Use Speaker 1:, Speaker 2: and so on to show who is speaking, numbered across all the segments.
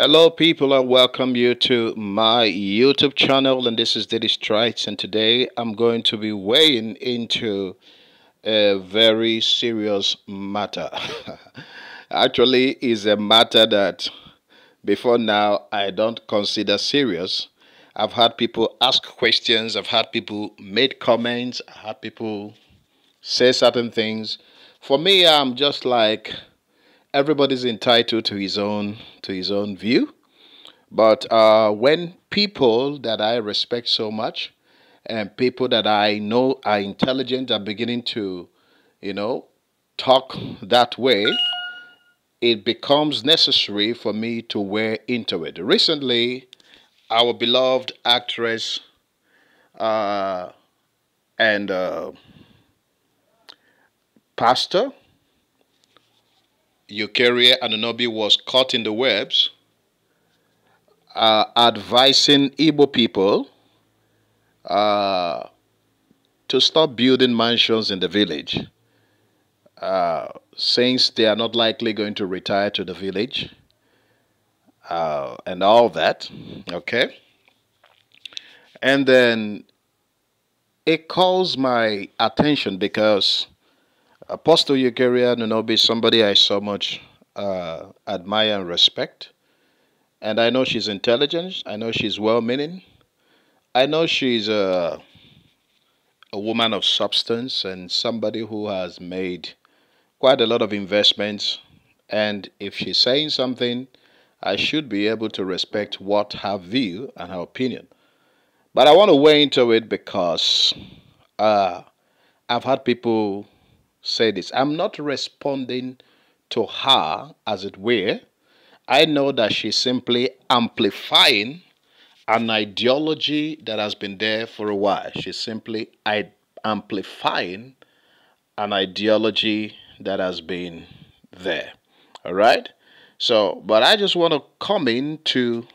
Speaker 1: Hello people and welcome you to my YouTube channel and this is Diddy Strikes and today I'm going to be weighing into a very serious matter. Actually is a matter that before now I don't consider serious. I've had people ask questions, I've had people make comments, I have had people say certain things. For me I'm just like everybody's entitled to his own to his own view. But uh, when people that I respect so much and people that I know are intelligent are beginning to, you know, talk that way, it becomes necessary for me to wear into it. Recently, our beloved actress uh, and uh, pastor Eukarya Anunobi was caught in the webs uh, advising Igbo people uh, to stop building mansions in the village uh, since they are not likely going to retire to the village uh, and all that. Okay. And then it calls my attention because Apostle Yukaria Nunobi is somebody I so much uh, admire and respect. And I know she's intelligent. I know she's well meaning. I know she's a, a woman of substance and somebody who has made quite a lot of investments. And if she's saying something, I should be able to respect what her view and her opinion. But I want to weigh into it because uh, I've had people say this I'm not responding to her, as it were. I know that she's simply amplifying an ideology that has been there for a while. She's simply i amplifying an ideology that has been there. All right? So, but I just want to come in to,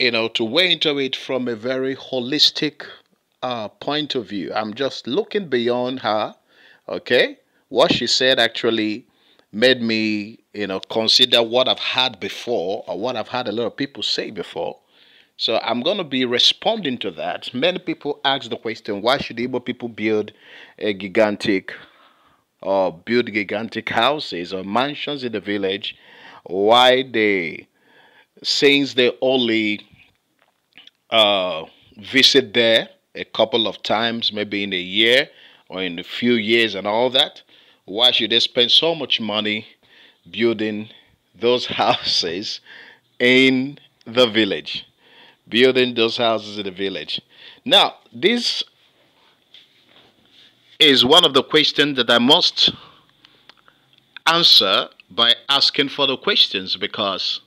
Speaker 1: you know, to weigh into it from a very holistic uh, point of view. I'm just looking beyond her Okay? What she said actually made me, you know, consider what I've had before or what I've had a lot of people say before. So I'm going to be responding to that. Many people ask the question, why should Igbo people build a gigantic or build gigantic houses or mansions in the village? Why they, since they only uh, visit there a couple of times, maybe in a year, or in a few years and all that. Why should they spend so much money building those houses in the village? Building those houses in the village. Now, this is one of the questions that I must answer by asking further questions because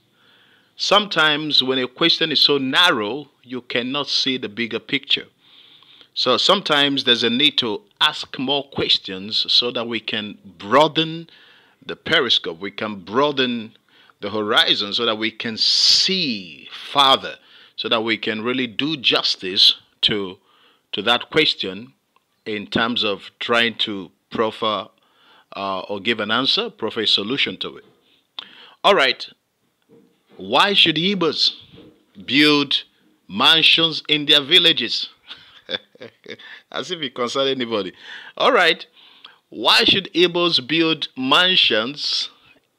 Speaker 1: sometimes when a question is so narrow, you cannot see the bigger picture. So sometimes there's a need to ask more questions so that we can broaden the periscope, we can broaden the horizon so that we can see farther, so that we can really do justice to, to that question in terms of trying to proffer uh, or give an answer, proffer a solution to it. All right, why should Ebers build mansions in their villages? As if it concerned anybody. All right. Why should Igbos build mansions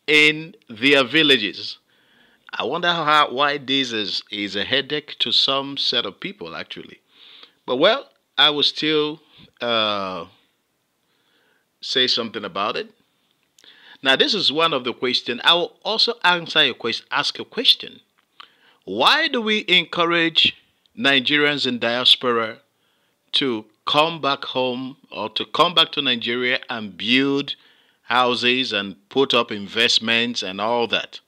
Speaker 1: in their villages? I wonder how, why this is, is a headache to some set of people, actually. But well, I will still uh, say something about it. Now, this is one of the questions. I will also answer question, ask a question. Why do we encourage Nigerians in diaspora to come back home or to come back to Nigeria and build houses and put up investments and all that.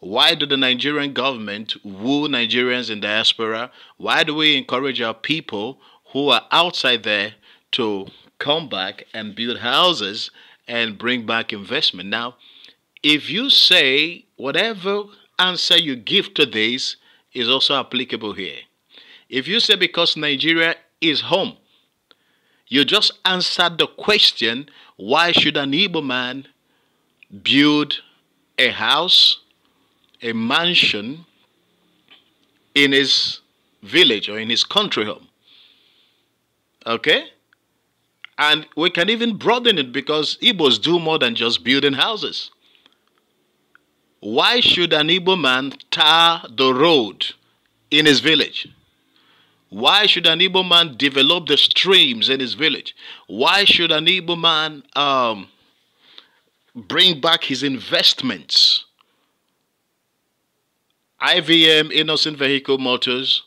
Speaker 1: Why do the Nigerian government woo Nigerians in diaspora? Why do we encourage our people who are outside there to come back and build houses and bring back investment? Now, if you say whatever answer you give to this is also applicable here. If you say because Nigeria is home. You just answered the question why should an Ibo man build a house, a mansion in his village or in his country home? Okay? And we can even broaden it because Igbos do more than just building houses. Why should an Igbo man tar the road in his village? Why should an Igbo man develop the streams in his village? Why should an Igbo man um, bring back his investments? IVM, Innocent Vehicle Motors,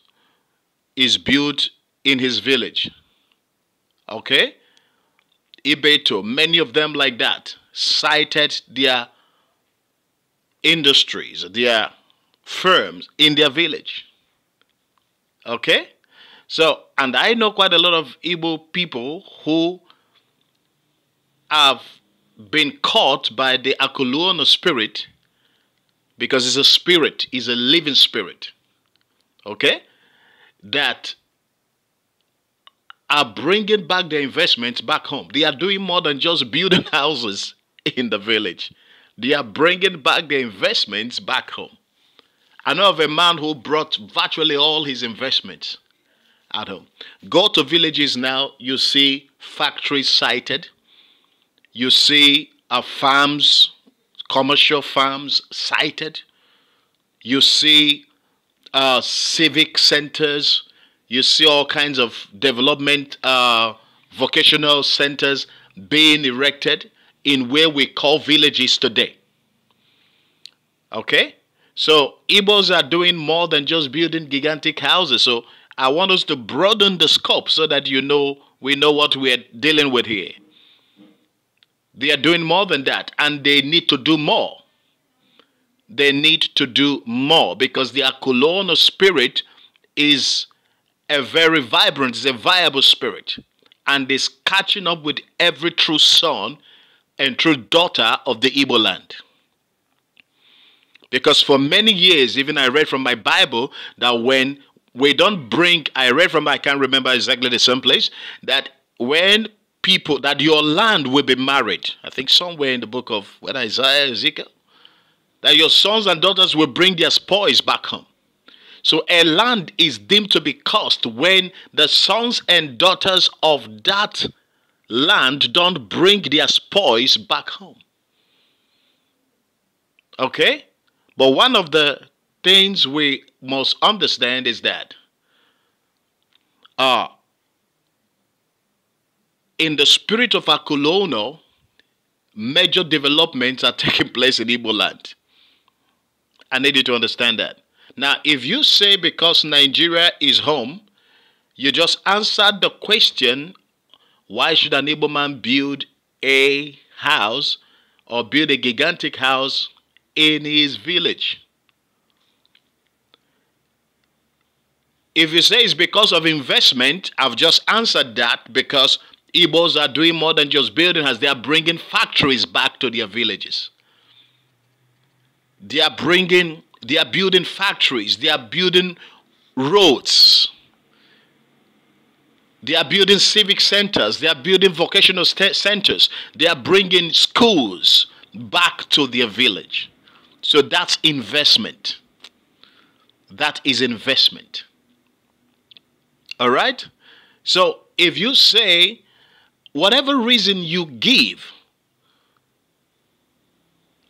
Speaker 1: is built in his village. Okay? Ibeto, many of them like that, cited their industries, their firms in their village. Okay? So, and I know quite a lot of Igbo people who have been caught by the Akuluono spirit because it's a spirit, it's a living spirit. Okay? That are bringing back their investments back home. They are doing more than just building houses in the village. They are bringing back their investments back home. I know of a man who brought virtually all his investments at home. Go to villages now, you see factories sited, you see uh, farms, commercial farms sited, you see uh, civic centers, you see all kinds of development uh, vocational centers being erected in where we call villages today. Okay? So, Igbos are doing more than just building gigantic houses. So, I want us to broaden the scope so that you know we know what we're dealing with here. They are doing more than that, and they need to do more. They need to do more because the Akulona spirit is a very vibrant, it's a viable spirit, and is catching up with every true son and true daughter of the Igbo land. Because for many years, even I read from my Bible that when we don't bring, I read from, I can't remember exactly the same place, that when people, that your land will be married, I think somewhere in the book of, whether Isaiah, Ezekiel, that your sons and daughters will bring their spoils back home. So a land is deemed to be cursed when the sons and daughters of that land don't bring their spoils back home. Okay? But one of the things we must understand is that uh, in the spirit of a colonial, major developments are taking place in Igbo land. I need you to understand that. Now, if you say because Nigeria is home, you just answered the question why should an Igbo man build a house or build a gigantic house in his village? If you say it's because of investment, I've just answered that because Igbos are doing more than just building as they are bringing factories back to their villages. They are bringing, they are building factories, they are building roads. They are building civic centers. They are building vocational centers. They are bringing schools back to their village. So that's investment. That is investment. All right? So if you say, whatever reason you give,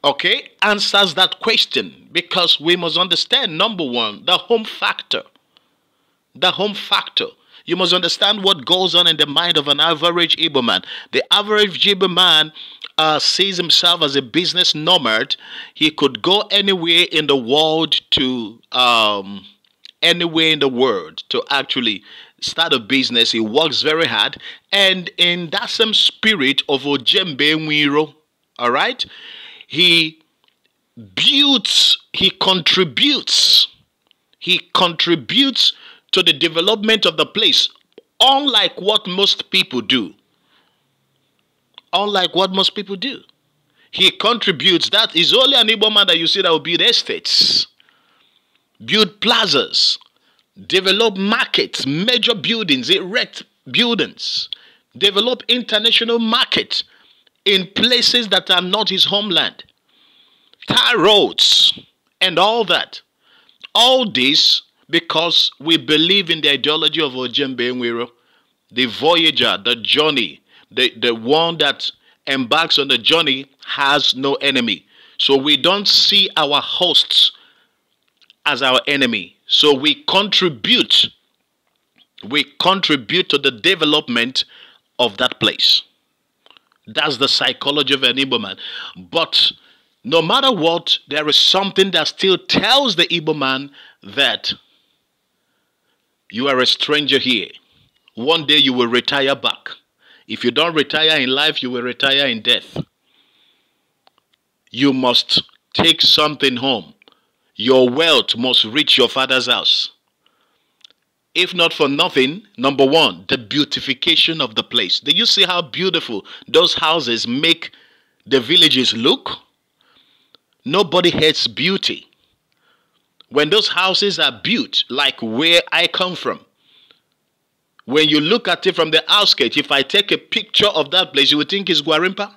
Speaker 1: okay, answers that question because we must understand number one, the home factor. The home factor. You must understand what goes on in the mind of an average Igbo man. The average Igbo man uh, sees himself as a business nomad. He could go anywhere in the world to um, anywhere in the world to actually start a business. He works very hard. And in that same spirit of Ojembe Nwiro, all right, he builds, he contributes, he contributes to the development of the place, unlike what most people do. Unlike what most people do. He contributes. That is only an Igbo man that you see that will build estates build plazas, develop markets, major buildings, erect buildings, develop international markets in places that are not his homeland, tar roads, and all that. All this because we believe in the ideology of Ojembe Nwiro, the voyager, the journey, the, the one that embarks on the journey has no enemy. So we don't see our hosts as our enemy. So we contribute, we contribute to the development of that place. That's the psychology of an Igbo man. But no matter what, there is something that still tells the Igbo man that you are a stranger here. One day you will retire back. If you don't retire in life, you will retire in death. You must take something home. Your wealth must reach your father's house. If not for nothing, number one, the beautification of the place. Do you see how beautiful those houses make the villages look? Nobody hates beauty. When those houses are built, like where I come from, when you look at it from the outskirts, if I take a picture of that place, you would think it's Guarimpa?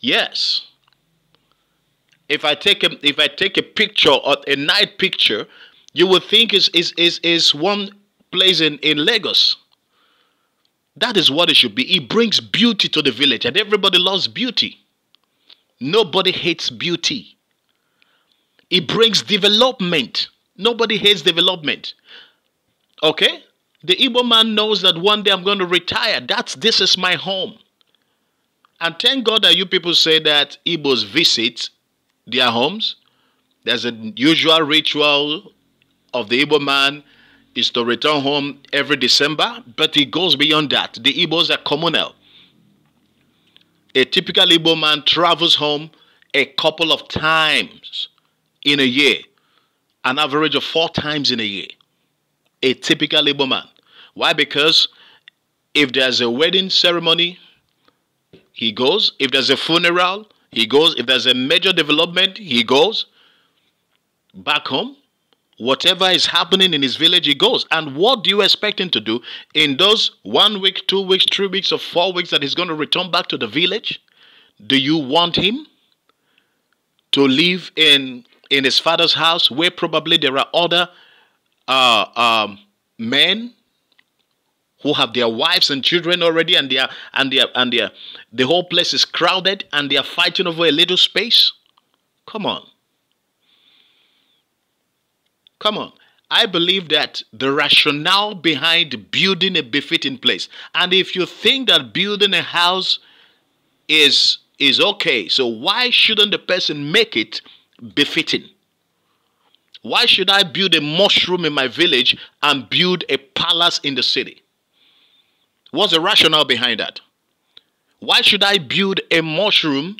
Speaker 1: Yes. If I take a if I take a picture or a night picture, you would think is is is is one place in, in Lagos. That is what it should be. It brings beauty to the village, and everybody loves beauty. Nobody hates beauty. It brings development. Nobody hates development. Okay? The Igbo man knows that one day I'm going to retire. That's this is my home. And thank God that you people say that Igbos visit their homes. There's a usual ritual of the Igbo man is to return home every December, but it goes beyond that. The Igbos are communal. A typical Igbo man travels home a couple of times in a year, an average of four times in a year. A typical Igbo man. Why? Because if there's a wedding ceremony, he goes. If there's a funeral, he goes, if there's a major development, he goes back home. Whatever is happening in his village, he goes. And what do you expect him to do in those one week, two weeks, three weeks, or four weeks that he's going to return back to the village? Do you want him to live in, in his father's house where probably there are other uh, um, men who have their wives and children already and are, and are, and their the whole place is crowded and they are fighting over a little space come on come on I believe that the rationale behind building a befitting place, and if you think that building a house is is okay, so why shouldn't the person make it befitting? Why should I build a mushroom in my village and build a palace in the city? What's the rationale behind that? Why should I build a mushroom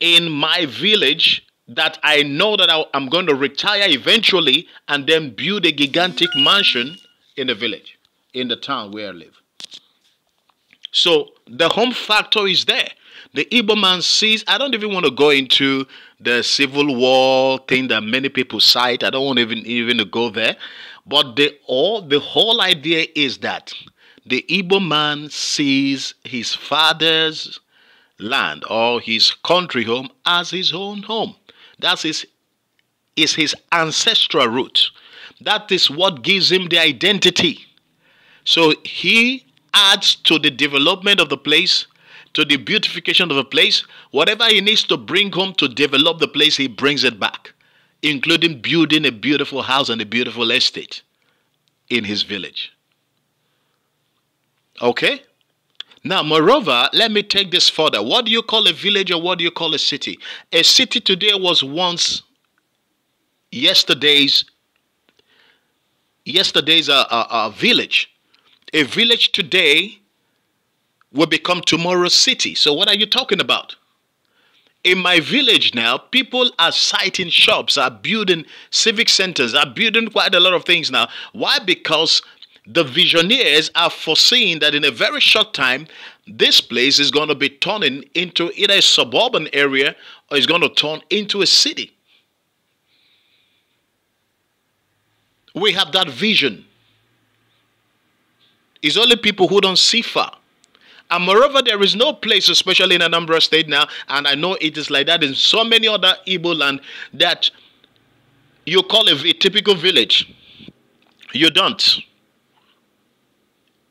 Speaker 1: in my village that I know that I'm going to retire eventually and then build a gigantic mansion in the village, in the town where I live? So the home factor is there. The Igbo man sees, I don't even want to go into the civil war thing that many people cite. I don't want even even to go there. But the all the whole idea is that the Igbo man sees his father's land or his country home as his own home. That is, is his ancestral root. That is what gives him the identity. So he adds to the development of the place, to the beautification of the place. Whatever he needs to bring home to develop the place, he brings it back, including building a beautiful house and a beautiful estate in his village. Okay? Now, moreover, let me take this further. What do you call a village or what do you call a city? A city today was once yesterday's yesterday's a, a, a village. A village today will become tomorrow's city. So what are you talking about? In my village now, people are siting shops, are building civic centers, are building quite a lot of things now. Why? Because the visionaries are foreseeing that in a very short time, this place is going to be turning into either a suburban area or it's going to turn into a city. We have that vision. It's only people who don't see far. And moreover, there is no place, especially in Anambra State now, and I know it is like that in so many other Igbo land, that you call a, a typical village. You don't.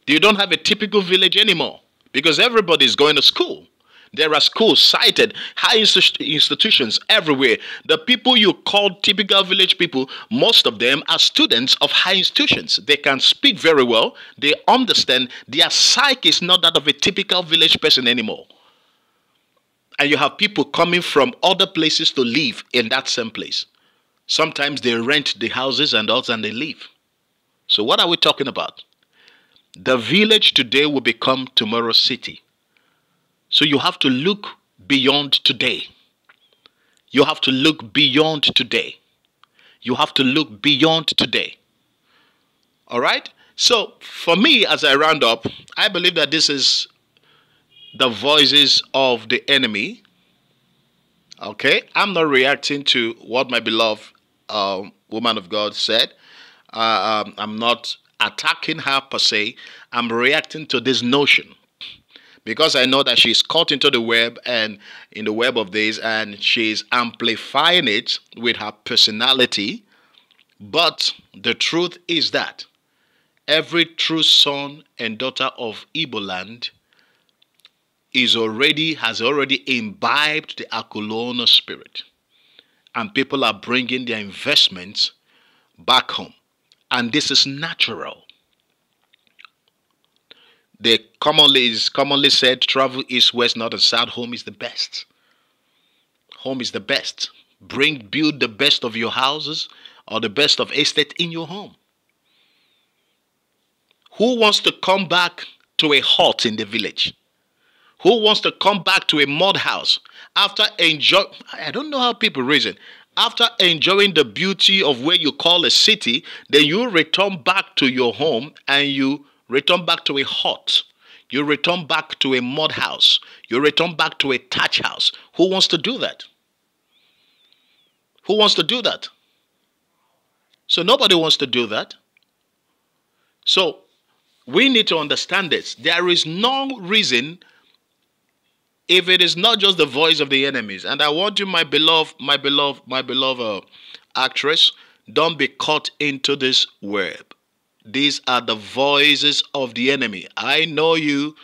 Speaker 1: You don't have a typical village anymore because everybody is going to school. There are schools cited, high institutions everywhere. The people you call typical village people, most of them are students of high institutions. They can speak very well, they understand their psyche is not that of a typical village person anymore. And you have people coming from other places to live in that same place. Sometimes they rent the houses and others, and they leave. So, what are we talking about? The village today will become tomorrow's city. So you have to look beyond today. You have to look beyond today. You have to look beyond today. All right? So, for me, as I round up, I believe that this is the voices of the enemy. Okay? I'm not reacting to what my beloved uh, woman of God said. Uh, um, I'm not attacking her per se. I'm reacting to this notion because I know that she's caught into the web and in the web of this, and she's amplifying it with her personality. But the truth is that every true son and daughter of Iboland is already has already imbibed the Akulona spirit, and people are bringing their investments back home and this is natural. The commonly is commonly said travel east, west, north, and south. Home is the best. Home is the best. Bring build the best of your houses or the best of estate in your home. Who wants to come back to a hut in the village? Who wants to come back to a mud house after enjoy? I don't know how people reason. After enjoying the beauty of where you call a city, then you return back to your home and you return back to a hut. You return back to a mud house. You return back to a touch house. Who wants to do that? Who wants to do that? So nobody wants to do that. So we need to understand this. There is no reason if it is not just the voice of the enemies, and I want you, my beloved, my beloved, my beloved uh, actress, don't be caught into this web. These are the voices of the enemy. I know you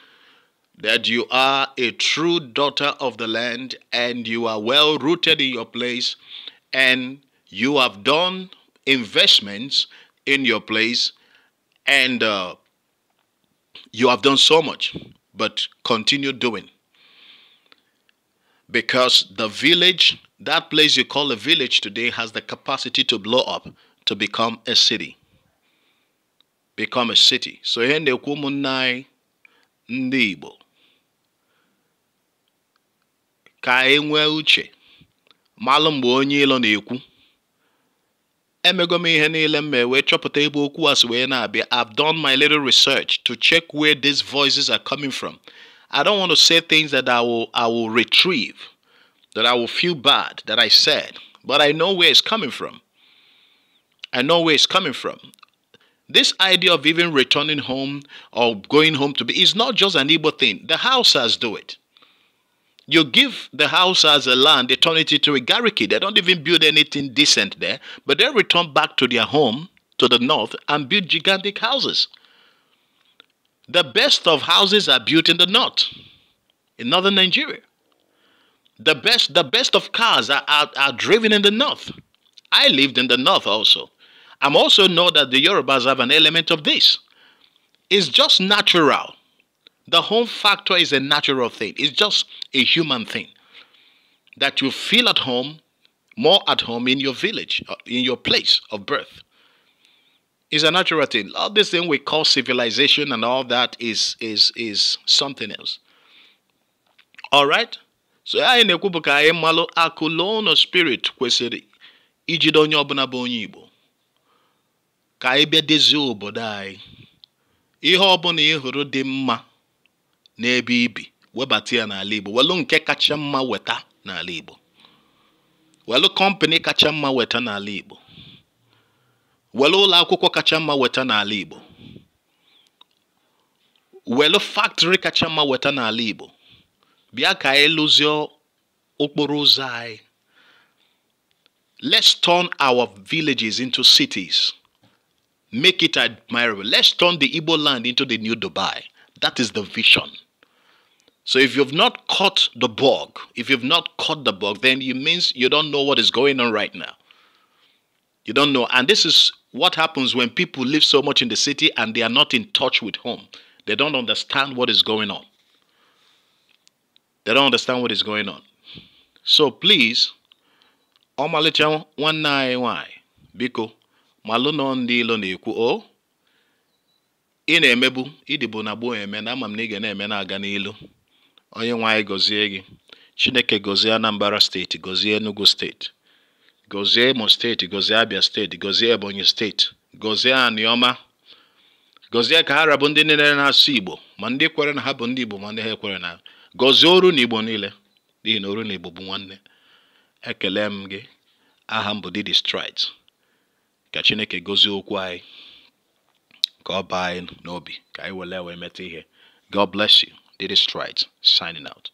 Speaker 1: that you are a true daughter of the land and you are well rooted in your place and you have done investments in your place and uh, you have done so much, but continue doing because the village, that place you call a village today, has the capacity to blow up to become a city. Become a city. So ihe na-ekwu ụmụnna ndị uche malụ mgbe onye ilo na-ekwu emego m ihe niile m wee chọpụta na I've done my little research to check where these voices are coming from I don't want to say things that I will I will retrieve, that I will feel bad that I said, but I know where it's coming from. I know where it's coming from. This idea of even returning home or going home to be is not just an evil thing. The houses do it. You give the as a land, they turn it into a garriki. They don't even build anything decent there, but they return back to their home to the north and build gigantic houses. The best of houses are built in the north, in northern Nigeria. The best, the best of cars are, are, are driven in the north. I lived in the north also. I'm also know that the Yorubas have an element of this. It's just natural. The home factor is a natural thing. It's just a human thing. That you feel at home, more at home in your village, uh, in your place of birth. It's a natural thing. All this thing we call civilization and all that is is is something else. All right? So I na na-ekwubụ ka anyị malụ spirit kwesịrị ijido onye ọbụla bụ onye Igbo ka anyị bịa dezie obodo anyị ihe ọbụla ị hụrụ dị mma n'ebe ibi webata Igbo welụ nke kacha mma weta na Igbo welụ kọmpani kacha mma weta na Igbo were ụlọ akwụkwọ kacha mma weta n'ala Igbo were factory kacha mma weta n'ala Igbo bịa ka anyị lụzie okporo ụzọ anyị let's turn our villages into cities make it admirable let's turn the Igbo land into the new Dubai that is the vision so if you've not caught the bug if you've not caught the bug then it means you don't know what is going on right now you don't know and this is what happens when people live so much in the city and they are not in touch with home? They don't understand what is going on. They don't understand what is going on. So please, ọmalịcha one anyị nwanyị biko maluno ndị loni na o ine ị na-emebu ịdịbụ na eme na ama m eme na-aga n'ilu onye gọzie gị Chineke gọzie Anambra state gọzie Enugu state. gọzie imo steeti gọzie abia steeti gọzie ebonyi steeti gọzie aniọma gọzie ka ha rabụ ndị niile na-asụ igbo ma ndị kwere na ha bụ ndị igbo ma ndị ha ekwere na gozie oru na igbo niile n'ihi na oru na igbo bụ nwanne ekele m gị aha m bụ Didi Strides ka chineke gozie okwu anyị ka ọ baa anyị n'obi ka anyị were wee meta ihe God bless you Didi Strides signing out